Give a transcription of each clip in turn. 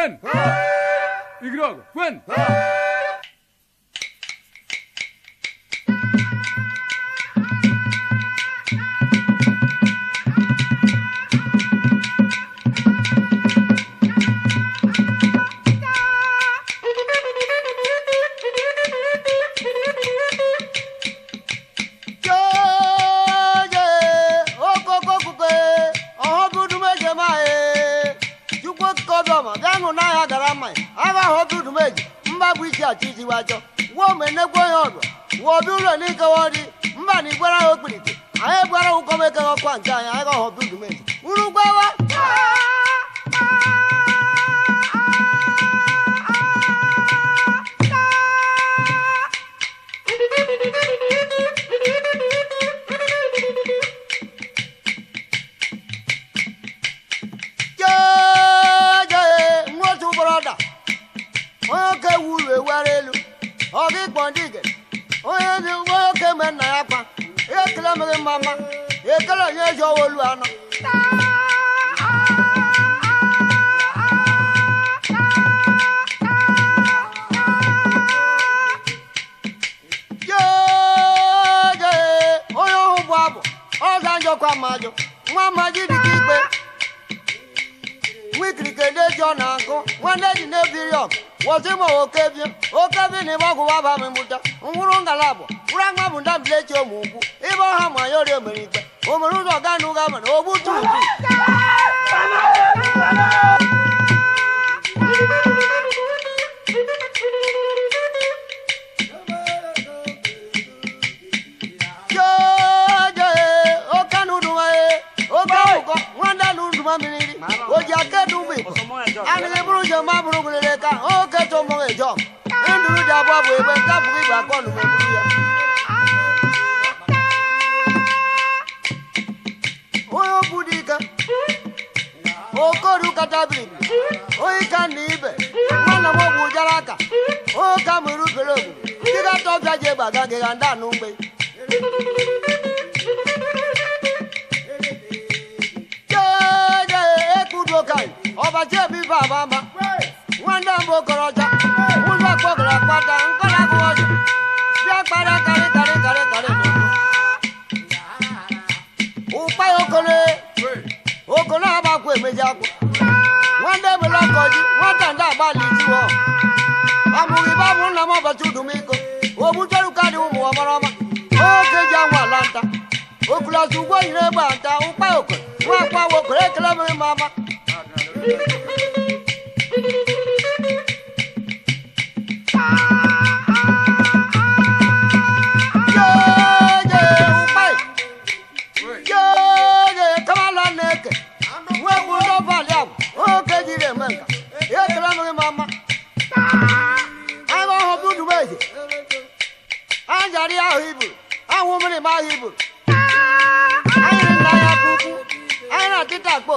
Juan! Ignogo! Ah. Juan! Ah. ịkpọdige onye dị nwoke me nna ya kwa ekele mere mma mama ekele onye ji owolu anọ ọkwa mmajụ nwa mmaji dị ka ikpe nwikirike ndị ji ọ na-agụ ji na-ebiri ọgụ gwọha ma ọwụ ok ebe okebe na ebe ọgwụgwa bụ ama mụta hụrụ ngalaba ụrụ aga bụ ndaleti bụ ụmụ ukwu ahụ a ma ya ọrị omerita omere ụzọ ọga na ụga mara o gbududu oji akedu mgbe anịghị bụrụ ụjọ ma bụrụ gwụrere ka oke chọ mụrụ ịjọ ndụrụ dị abụọ bụ ebe nke abụghị bụ akọ ọnụ meburu ya onye okwu ike okoru kacha biri onye ka na ibe nwanne m ogwu jara aka onye ka mụrụ ubere ogwu ndị ga-atọ bịa ji egbe aga gị ọbaji obi baba nwanne m okoroja ụlọ kpata nkọla gụ ọjụ bịa kpara karị karị karị karị nwata ndị agbalị jiwọ amụghị be nna m ji nta Ahụ mmiri ma ahụ ibu. Anyị na ya puku, anyị na tịta akpọ.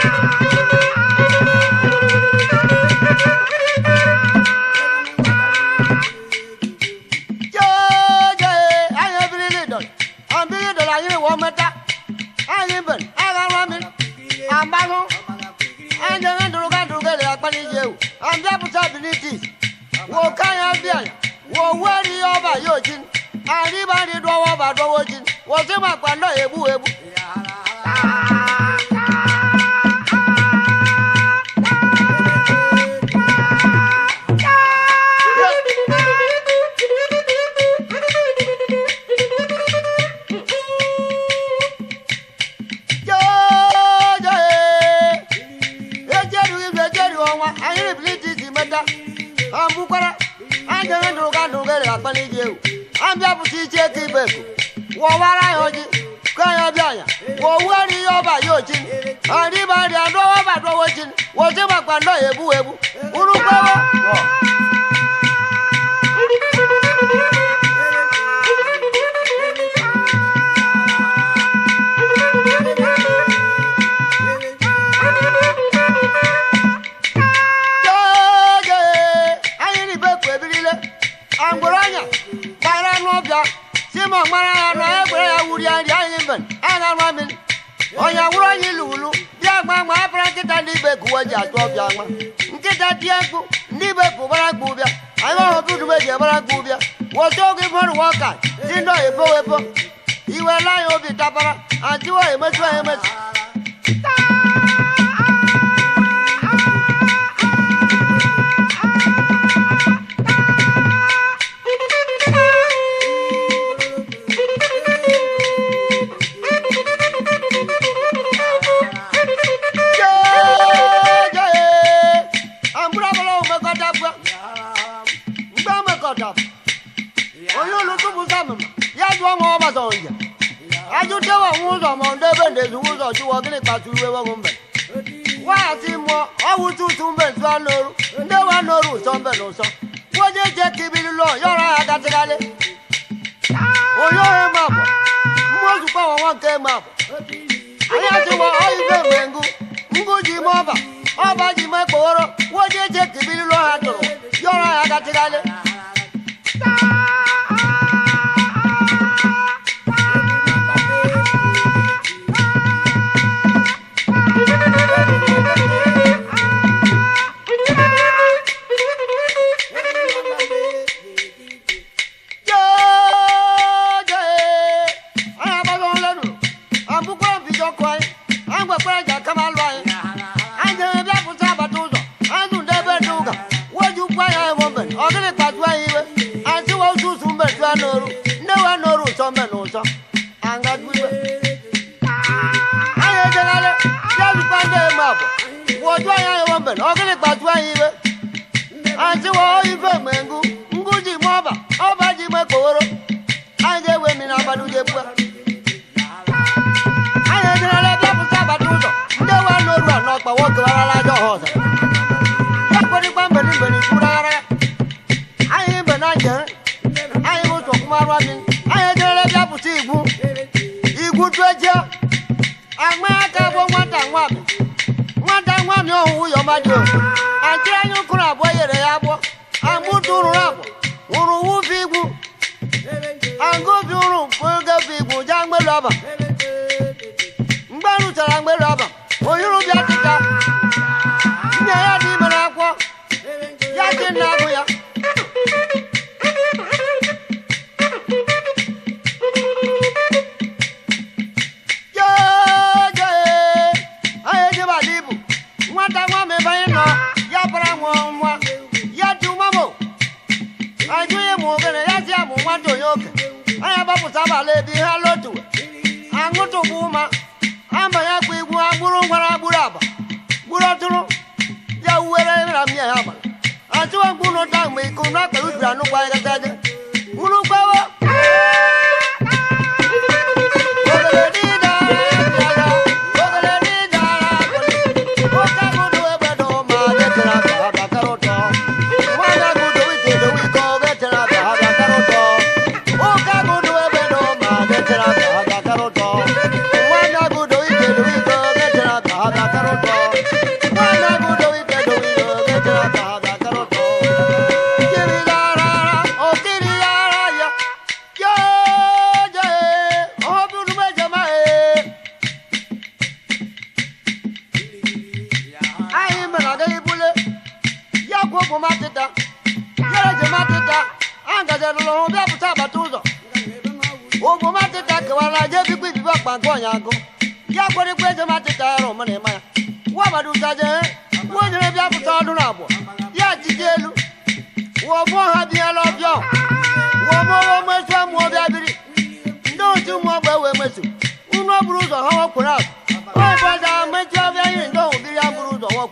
womata aliban agaramin ambalu anjanga duruga duruga le akpani jeu ambia possibilities wo kaya bia wo wari oba yojin ariba ri dowo ba dowo jin wo se ma pa lo ebu ebu ah adịghị na ụga na ugere akpali gị ewu abịa pụta iche ka ibe ku wọwara ya oji ka ya ọbịa ya wọwere ihe ọba ya oji ọrịba ọrịa dọwa ọba dọwa oji woji makwa ndọ ya ebu egbu urukwewe ọbịa simon mara ya na egbere ya wuri ya nri anyị mbe aga ma mmiri onye wụrụ onye ilu ulu bịa gba ma abara nkịta ndị ibe gụwa ji atụ ọbịa nwa nkịta tie mkpu ndị ibe pụbara gba ụbịa anyị ọrụ dudube ji ebara gba ụbịa wọta oge mmadụ wọka si ndị oyibo obi tabara adịwo chụọ nwa ọgbata ọja ajụtewa nwa ụzọ ma ọ debe ndezi ụzọ chụwa gịnị kpatụ iwe nwa mbe waghachi mụọ ọwụ mbe ntụ anọrụ ndị wa anọrụ ụsọ mbe na ụsọ yọrọ ha gatịgharị onye eje anwa aka bụ nwata nwami nwata nwami ọhụụ yọmadio ajị anyị ụkụrụ abụọ yere ya agbọ agbụtụ rụrụ agbọ wụrụ wufe igwu ta mia ya ba. Antu wa kuno ta me kuno ka no kwa ga ta.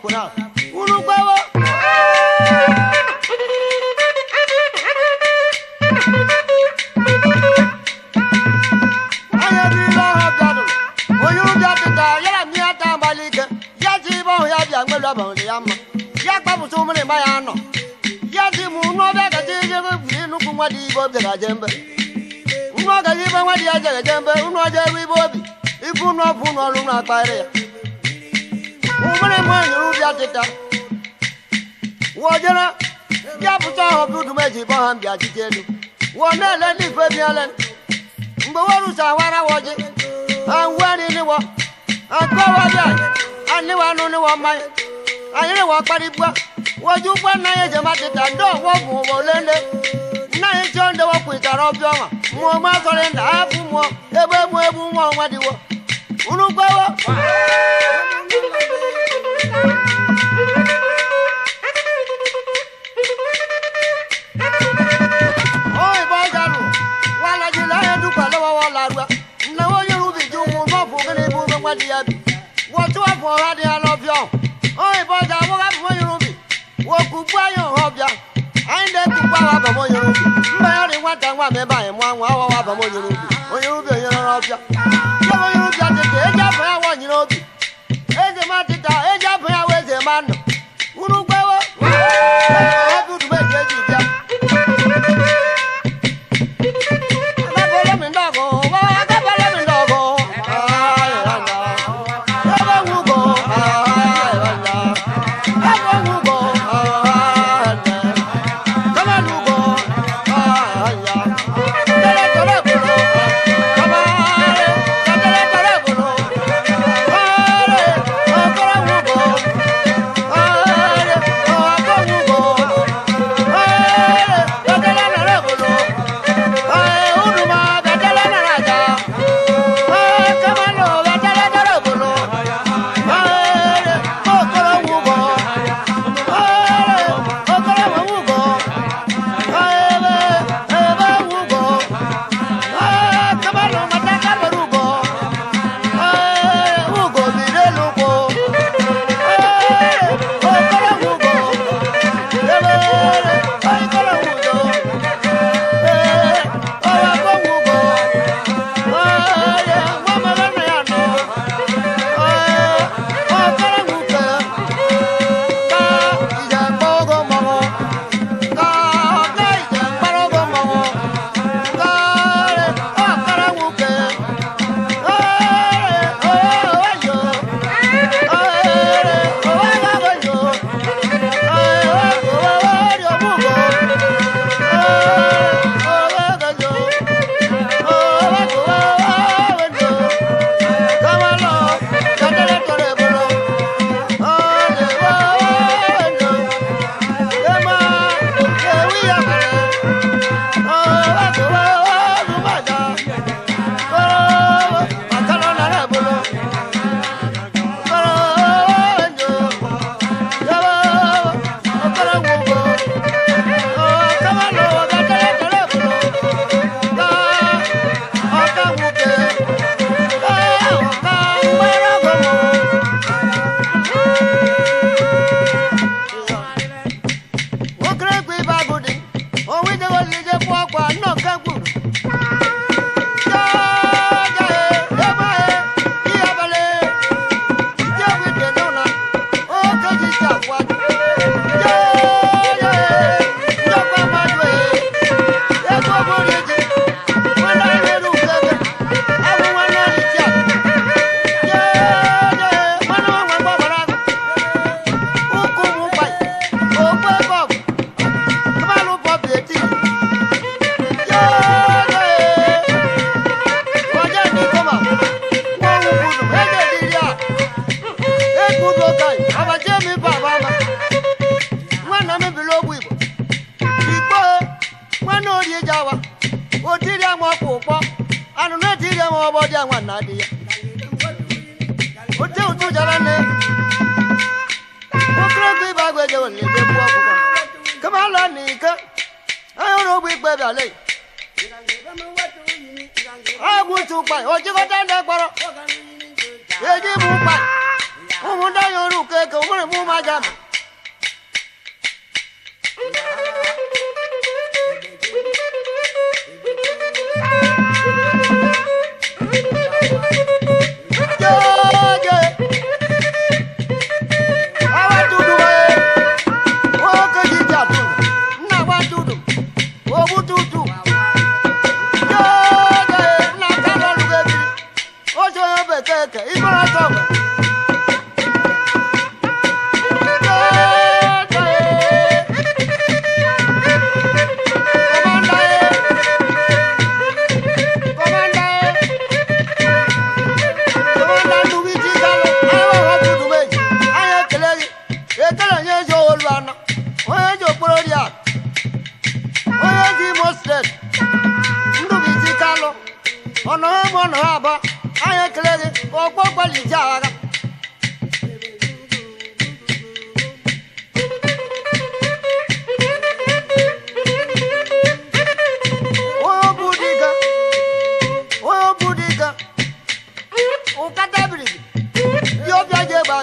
ọkwụna onye ọha bịanụ onye na mmiri ata ya ji ibe ọhụ ya bịa ya mma ya ma ya nọ ya ji m gaji ijebe nwa dị ibe obi gaje mbe nwa gaji ibe nwa dị ya mbe unu ọjọ ya nwere nwanyị bịa tịta wojere ya pụta ọhụrụ dudum eji bọ ha mbịa jite elu wọ na-ele ndị ife mgbe werusa wara woji ha weriniwọ akọwabịa niwọ mmanya anyị ndị ọgbọ bụ ụgbọ olele nna anyị chọọ ndị wọkwitara ọbịa ọnwa mmụọ mazọrị nda hapụ mmụọ ebe olùgbàwọ. wọ́n tún wà fún ọ̀rá ni a lọ bí ọ́ ọ́ ìbọn jà wọ́n bá fún ọ́ yorùbá wọ́n kú gbọ́ ayọ̀ ọ̀bíà ayíǹde kú gbọ́ àwọn àbọ̀mọ́ yorùbá mbẹ́yọ̀ ni wọ́n ta wọ́n àmẹ́bà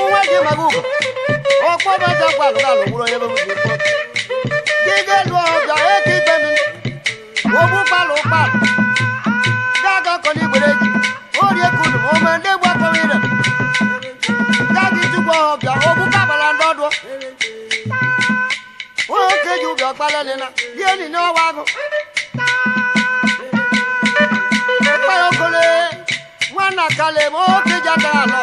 bụ nwa gị maga ugo ọkpọbaja gwalụgalụ gwụrụ onye gị ga-elu eke itemi ogbu kpalụ kpalụ ga-aga kọna orie kunu ome ndị egbu akọwa ire ga-aga itukwa ọbịa ogbu kabala ndị ọdụ onye oke ji ụbịa ọkpalelina ya enyi okole nwanna kale ma oke ji atara alọ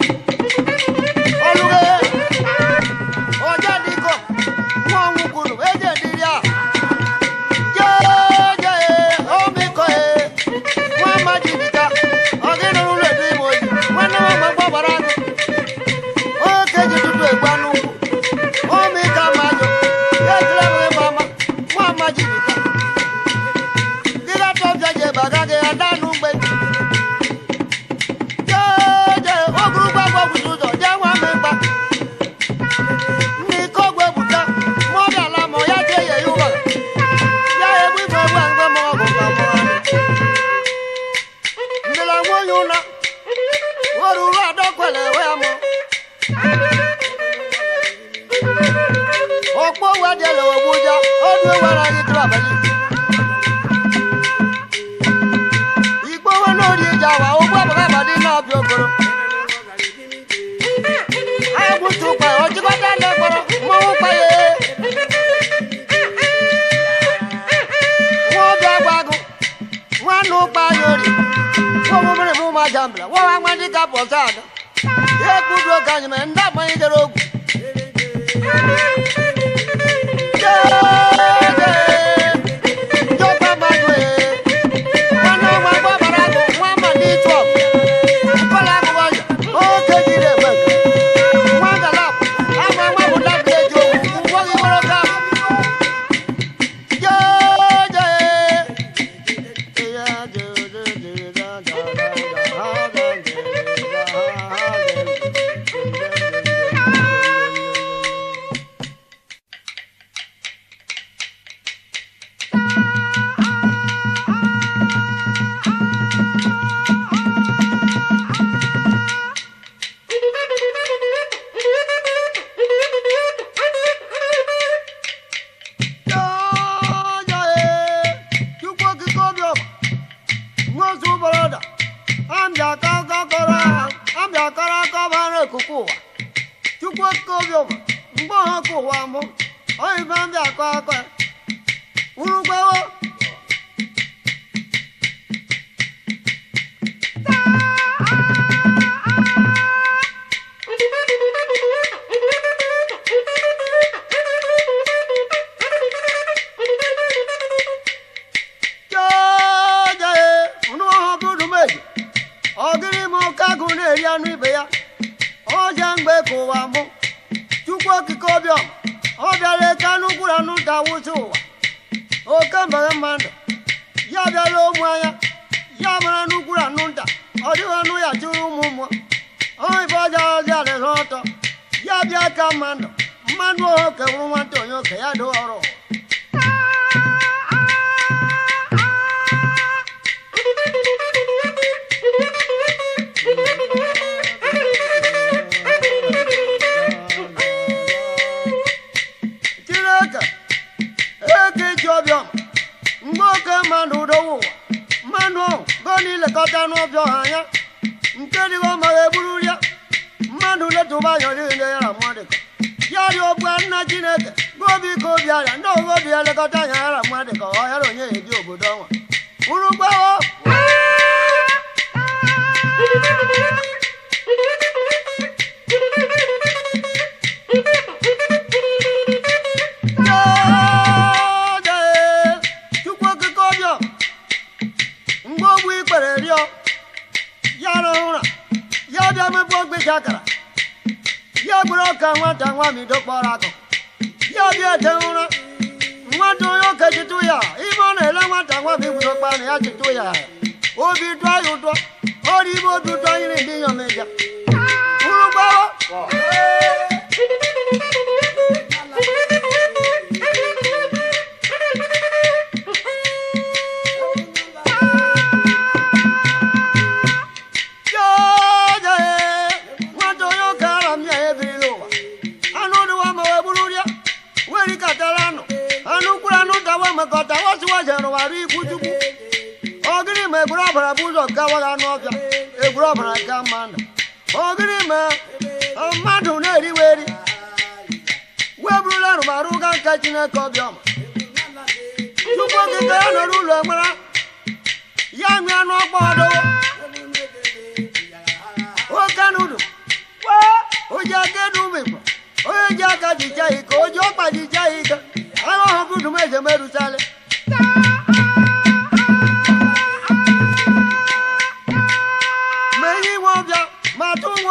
dịka pọtad ekwugo ka anyị mere ndị agbanyedere ogwu akụkụ ụwa chukwu oke obi ụwa mgbe ọha ka ụwa mụ oyibe ndị akọ aka urugwewo tụba yọrọ ile ya ramọdị yari ogbu nna chineke gobi ka obi ara ndị ogobi elekọta ya ramọdị ka ọ yara onye ebi obodo ọnwa urugbawo mgbe ogbu ikpere rịọ ya rahụra ya bịa mepụ ogbe ji akara bụrụ ka nwata nwamido kpọrọ akụ ya bịa de ụra nwata onye oke chịtụ ya ime ọ na-ele nwata nwam igwudo kpana ya chịtụ ya obi dụọ ya ụtọ ọrụ ime obi ụtọ nyere ndị nyomeja ụrụ gbawa gbara ikwu chukwu ogiri ma egburu ọbara bụ ụzọ gawaga anụ ọbịa egburu ọbara ga mana ogiri ma mmadụ na eri weburula ga nke chineke ọbịọma tupu okike ya nọrọ ụlọ mara ya nwee anụ ọkpọ ọdowo oke nudu aka onye ji aka ike ọkpa ike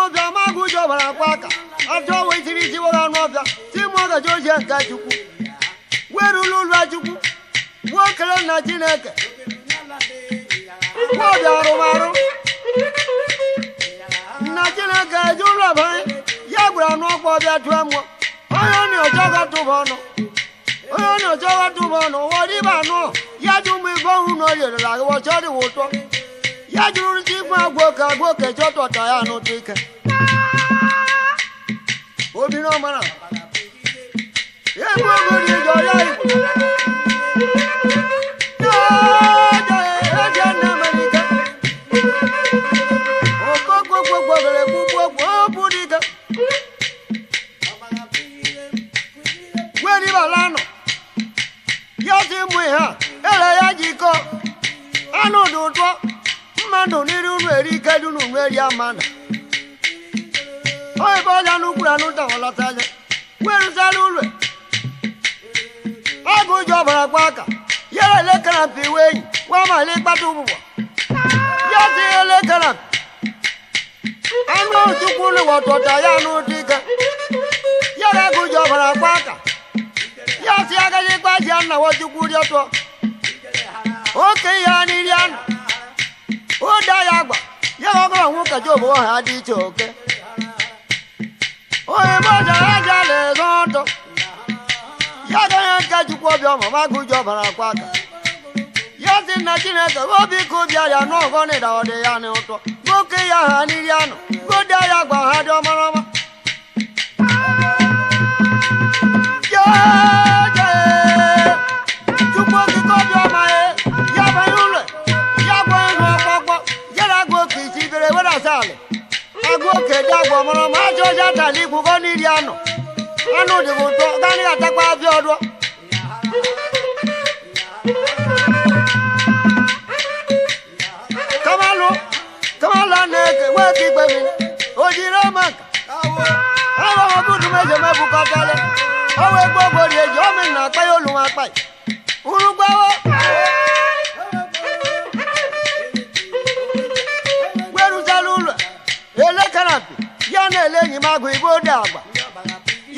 ọbịa magụ jọbara akwa aka ajọ wetiri jiwara ọnụ ọbịa timọgaji oji chukwu ụlọ chukwu gbuo chineke ọbịa arụmarụ nna chineke eji ụlọ banye ya gburu anụ ọkpa ọbịa tụọ mmụọ onye ọ na-ọjọ gatụba ọnụ onye ọ na-ọjọ gatụba ọnụ ghọrọ anụ ya ụmụ ọhụrụ na o yerela dịwa ụtọ ya jụrụ chikwu agwoke agwoke chọtọta ya n'ụtụike obinọmara egwu ogo dị jọ ya nụ n'iri unu eri ike dị unu nweri ama na ebe ọja n'ukwuru anụ dawalata anya werụzala ụlọ ọ bụ ụjọ ọbara gwa aka yere elekere mpi iwe enyi nwa mala ịkpata ụgbụgbọ ya dị elekere anụ chukwu ụlọ wọtọta ya n'ụdị ike yere agụ ji ọbara gwa aka ya si agaghị ịgbaji ya nna wọchukwu rịọtọ okenye ya n'iri anụ ụda ya agba ya na ọgọrọ nwoke job ọha dị iche oke onye mojara aja na-ezo ndụ ya ga onye nke Chukwu obi ọma ma gụji ọbara akwa aka ya si na chineke obi ka obi arịa n'ọgọ na ịda ọdị ya n'ụtọ nwoke ya ha n'iri anụ ụda ya agba ha dị ọmarọma Yeah! gbọmọrọ ma cho ja tali ku ko ni riano anu de bo to gani atakpa fi odo kamalu kamala ne ke we ki gbe mi ojire ma awo awo mo budu meje me bu ka tele awe gbogbo re jo mi na pe olun apa urugbawo elekaran ele enyi m agụ igbo dị agba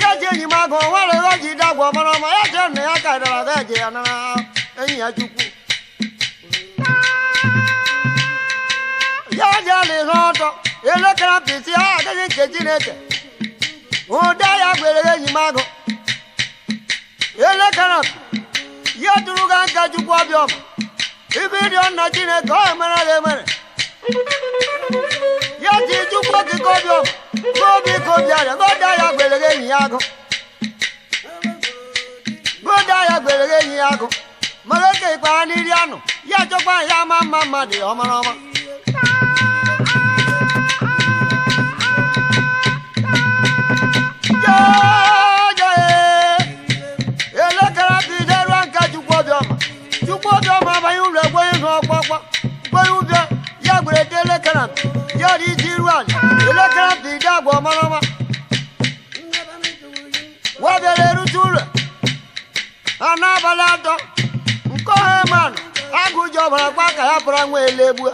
ya ji enyi m agụ nwere ji dị agwa mara ọma ya jee nna ya ka ịdara ga eje ya nara enyi ya chukwu ya ji ala ihe ọtọ elekere apịtị ha adịghị nke chineke ụda ya gwere enyi m agụ elekere ya tụrụ ga nka chukwu ọbịa ọma ibe ịrịọ nna chineke ọ emere ya ji chukwu okike obi obi arịa goda ya gberere enyi ya agụ goda ya gberere enyi ya agụ mara oke ikpara n'iri anụ ya chọkwa ya ama mma mmadụ ya ọmara ọma e, elekere chukwu obiọma chukwu abanye ụlọ egwenye zụ ọkpọkpọ ụbịa urede lekana yari jirwan lekana bida gwa marama wabere rutule anabala do nkohe man agụjọ bara gbaka ya bara nwa elegbu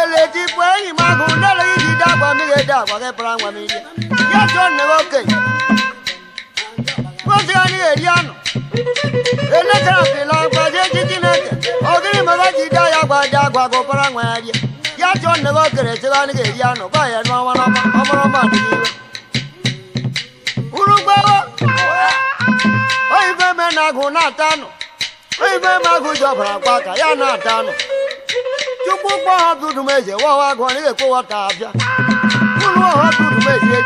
eleti bụ enyi m agụ nele ijide agwa mmiri ede agwa gị bara nwa mmiri ya chọ nne okenye nwozi ya na eri anụ elekere agbaje ji chineke ogiri mara ji da ya gbaji agwa gị ụbara nwa ya rie ya chọọ nne gị okere chebe anyị ga anụ gba ya n'ọnwa na agụ na-ata anụ oyibe agụ ji ọbara gba ka ya na-ata anụ chukwu ha eze ibe igbe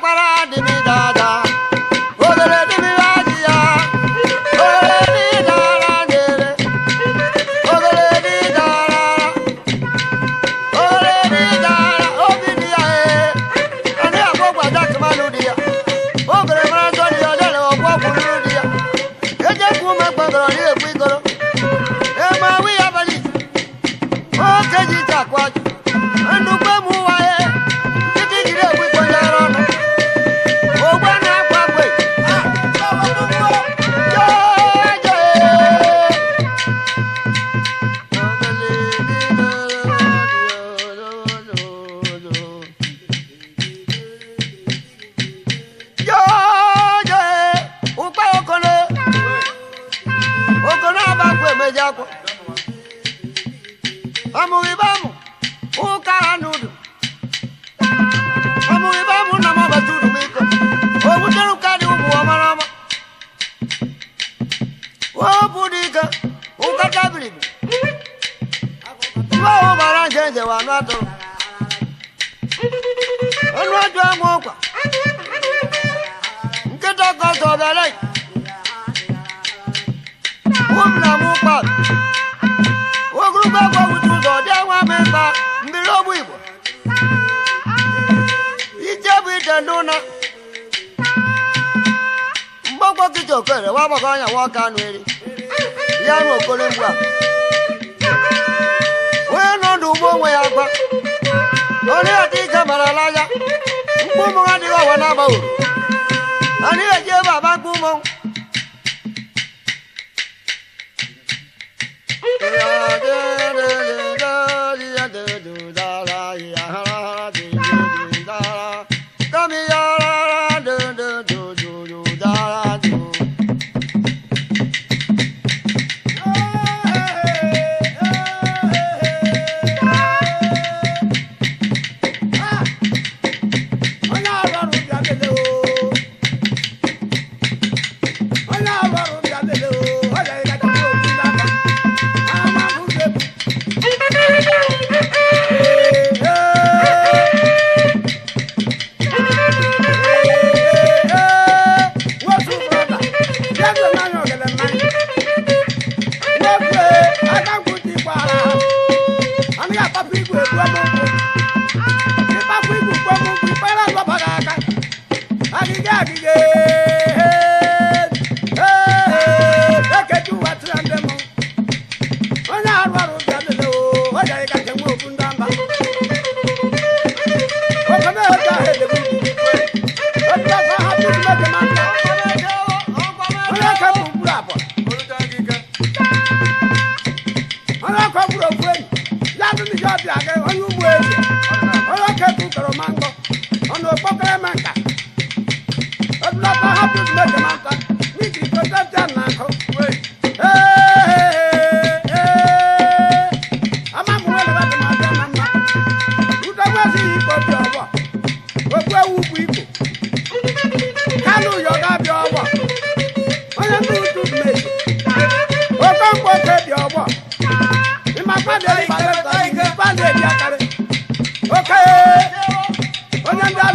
Guarani. Zodalai. Wum na mupa. Wogruba kwa utuzo dewa mesa mbilobu ibo. Ijebu itenduna. Mbokwa kichokere wabakanya wakanweri. Yanu okolimbwa. Weno ndubo onwe ya gba. Onye ati ike mara laja. Mkpụmụ adịghị ọwa n'aba uru àní ẹ̀jẹ̀ bàbá gbúmọ̀.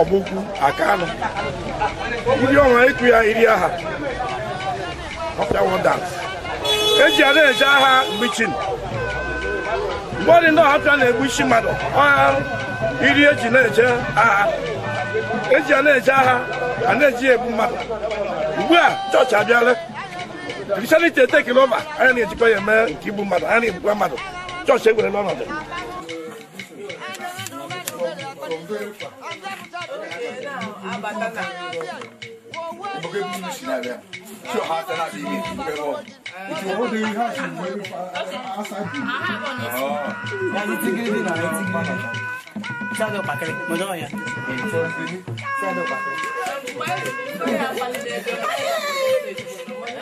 ọgbụkwu akanụ ndị ọnwa ịkụ ya iri aha eji ada eje agha mgbichi mgbe ọ dị ndị ọhapịa na-egbu isi mmadụ ọha iri eji na-eje agha eji a na-eje agha a na-eji egbu mmadụ ugbu a chọọchị abịala kristianity etekele ụba anyị na-ejikọ ya eme nke igbu mmadụ anyị na-egbukwa mmadụ chọọchị egwerela ọnọdụ abata na oge bi mu si na bia tí o ha tẹ náà bí mi ti fẹ wọ ìtì owó de ha ti wọ ebi fa asa bi ọ ẹni tí gidi na ẹni tí gidi na sáàdọ̀ pàkẹ́rẹ́ mo dán ọ̀yà sáàdọ̀ pàkẹ́rẹ́.